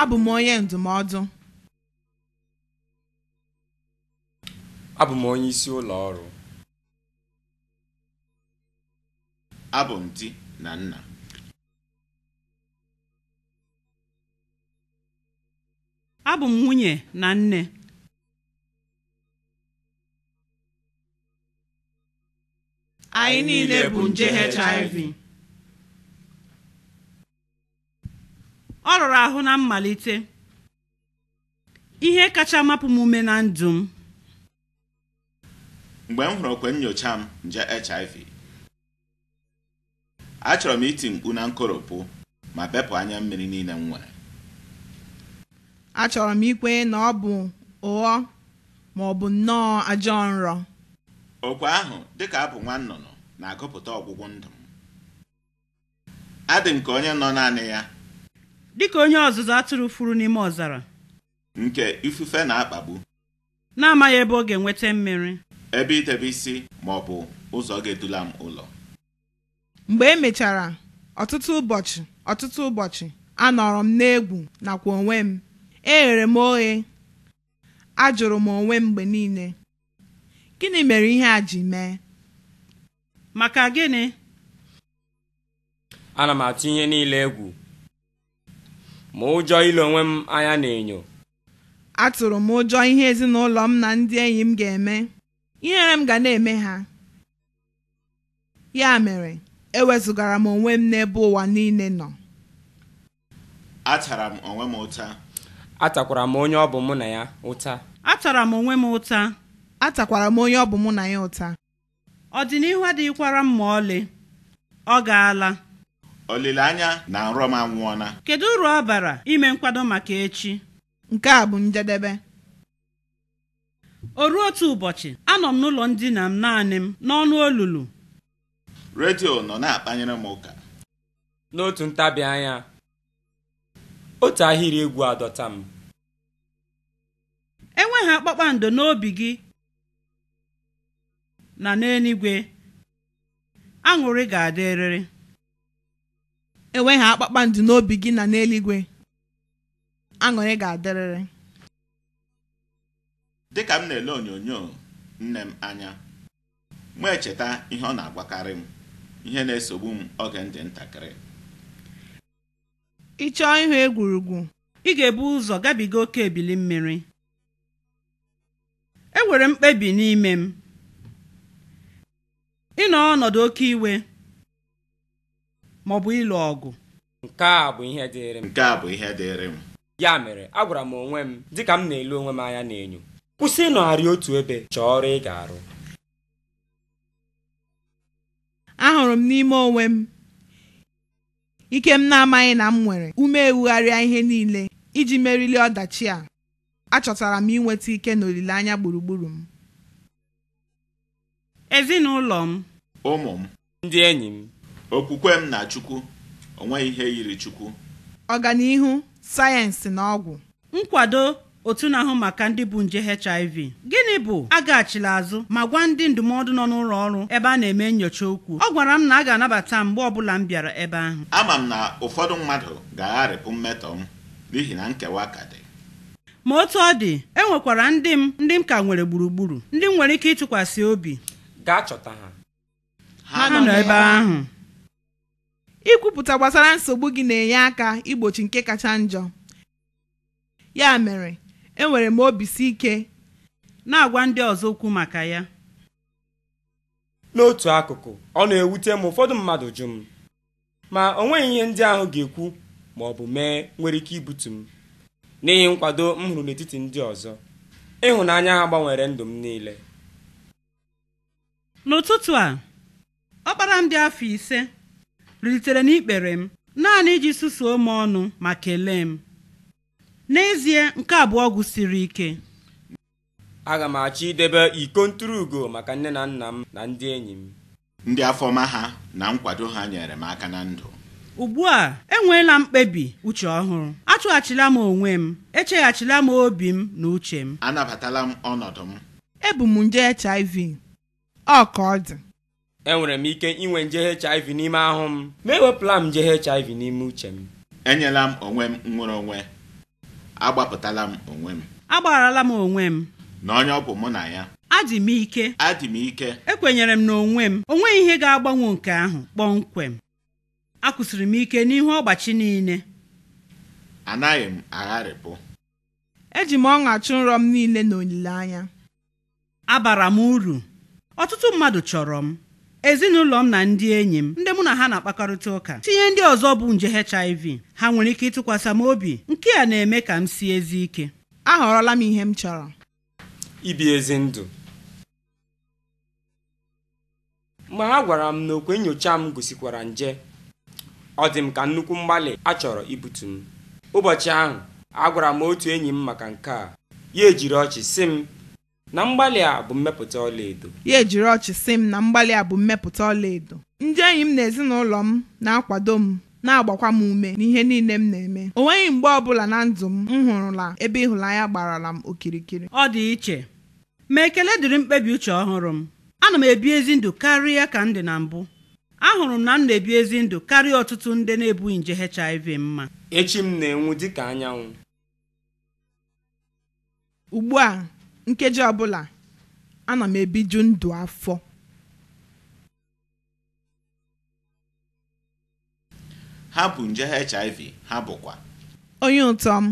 abụ m onye ndụmọdụ abụ m onye isi ụlọ ọrụ abụ m di na nna abụ m nwunye na nne anyị niile bụ nje HIV ọ rụrụ ahụ na mmalite ihe kacha mapụ m ume na ndụ m mgbe m hụrụ okwe nyocha m nje HIV achọrọ m iti mkpu na nkoropụ ma bepụ anya mmiri niile m nwere achọrọ m ikwe na ọ bụ ụghọ ma ọ bụ nnọọ ajọ nrọ okwe ahụ dịka abụ nwa na-agụpụta ọgwụgwụ ndụ m adị m ka onye nọ naanị ya dịka onye ọzụzụ atụrụ furu n'ime ọzara nke ifufe na-akpagbu na-amaghị ebe ọ ga-enweta mmiri ebe idebe isi ma ọ bụ ụzọ ga-edula m ụlọ mgbe e mechara ọtụtụ ụbọchị ọtụtụ ụbọchị anọrọ m n'egwu nakwa onwe m eghere m oghe ajụrụ m onwe m mgbe niile gịnị mere ihe a ji mee maka gịnị ana m atụ ihe niile egwu ma ụjọ ile onwe m anya n'enyo atụrụ m ụjọ ihe ezinụlọ m na ndị enyi m ga-eme ihere m ga na-eme ha ya mere ewezụgara m onwe m n'ebe ụwa niile nọ atara m onwe m ụta atakwara m onye ọ bụ mụ na ya ụta atara m onwe m ụta atakwara m onye ọ bụ mụ na ya ụta ọdịnihu adịghịkwara m ma ọlị ọ gaala olileanya na nrọ m anwụọna kedu uru ọ bara ime nkwado maka echi nke a bụ njedebe o ruo otu ụbọchị anọ m n'ụlọ ndina m naanị m n'ọnụ olulu redio nọ na-akpanyere m ụka n'otu ntabi anya otu ahịrị egwu adọta m enweghị akpakpando n'obi gị na n'eluigwe aṅụrị ga-adịrịrị enweghị akpakpando n'obi gị na n'eluigwe aṅụrị ga-adịrịrị dịka m na-ele onyonyo nne m anya m echeta ihe ọ na agbakarị m ihe na-esogbu m oge ndị ntakịrị ị chọọ ịhụ egwurugwu ị ga-ebu ụzọ gabiga oke ebili mmiri enwere mkpebi n'ime m ịnọ ọnọdụ oke iwe ma ọ bụ ịlụ ọgụ nke a bụ ihe dịịrị m nke a bụ ihe dịịrị m ya mere agwara m onwe m dịka m na elu onwe m anya n'enyo kwụsị ịnọgharị otu ebe chọọ ọrụ ị ga-arụ ahụrụ m n'ime onwe m ike m na-amaghị na m nwere ume ewugharịa ihe niile iji merili ọdachi a achọtara m inweta ike na olileanya gburugburu m ezinụlọ m ụmụ m ndị enyi m okwukwe m na chukwu onweghị ihe yiri chukwu ọganihu sayensị na ọgwụ nkwado otu na-ahụ maka ndị bụ nje HIV gịnị bụ agaghachila azụ ma gwa ndị ndụmọdụ nọ n'ụlọ ọrụ ebe a na-eme nyocha okwu ọ gwara m na a ga-anabata mgbe ọbụla m bịara ebe ahụ ama m na ụfọdụ mmadụ ga-agharịpụ mmetọ m n'ihi na nkewa ka dị ma otu ọ dị e nwekwara ndị m ndị m ka nwere gburugburu ndị m nwere ike ịtụkwasị obi gaa chọta ha ha nọ ebe ahụ ikwupụta gbasara nsogbu gị na-enye aka igbochi nke kacha njọ ya mere enwere m obi si ike na-agwa ndị ọzọ okwu maka ya n'otu akụkụ ọ na-ewute m ụfọdụ mmadụ jụ m ma o nweghị ihe ndị ahụ ga-ekwu ma ọ bụ mee nwere ike ibutu m n'ihi nkwado m hụrụ n'etiti ndị ọzọ ịhụnanya ha gbanwere ndụ m niile n'ụtụtụ a ọkpara m dị afọ ise na n'ikpere m naanị iji susuo m ọnụ ma kelee m n'ezie nke abụọ gụsiri ike aga m achọ idebe iko ntụrụugo maka nne na nna m na ndị enyi m ndị afọma ha na nkwado ha nyere m aka na ndụ ugbu a enweela mkpebi uche ọhụrụ achụghachila m onwe m echeghachila m obi m na uche m anabatala m ọnọdụ m ebu m nje HIV ọ ka enwere m ike inwe nje HIV n'ime ahụ m ma ewepụla m nje HIV n'ime uche m enyela m onwe m nwere onwe agbapụtala m onwe m agbarala m onwe m na onye ọ bụ mụ na ya adị m ike adị m ike ekwenyere m na onwe m onwe ihe ga-agbanwe nke ahụ kpọmkwem akwụsịrị m ike n'ihu ọgbachi niile anaghị m agharịpụ eji m ọṅa nrọ m niile na olileanya abara m uru ọtụtụ mmadụ chọrọ m ezinụlọ m na ndị enyi m ndị mụ na ha na-akpakọrịta ụka tinye ndị ọzọ bụ nje HIV ha nwere ike ịtụkwasị m obi nke a na-eme ka m si ezi ike ahọrọla m ihe m chọrọ ibi ezi ndụ mgbe ha gwara m na okwe nyocha m gosikwara nje ọ dị ka nnukwu mgbalị a chọrọ ibutu m ụbọchị ahụ agwara m otu enyi m maka nke a ya ejiri ọchị sị m na mgbalị a bụ mmepụta ọlaedo ya ejiri ọchị sị m na mgbalị a bụ mmepụta ọlaedo ndị enyi m na ezinụlọ m na-akwado m na-agbakwa m ume n'ihe niile m na-eme o nweghị mgbe ọbụla na ndụ m m hụrụla ebe ịhụnanya gbarala m okirikiri ọ dị iche ma ekele dịrị mkpebi uche ọhụrụ m ana m ebi ezi ndụ karịa ka m dị na mbụ ahụrụ m na m na-ebi ezi ndụ karịa ọtụtụ ndị na-ebughị nje HIV mma echi m na-enwu dịka anyanwụ ugbu a nkeji ọbụla ana m ebiju ndụ afọ ha bụ nje HIV ha bụkwa onye ụtọ m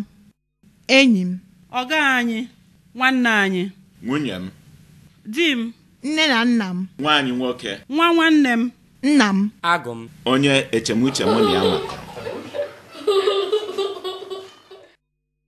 enyi m ọga anyị nwanne anyị nwunye m di m nne na nna m nwaanyị nwoke nwa nwanne m nna m agụ m onye echemuche m na ya makọrọ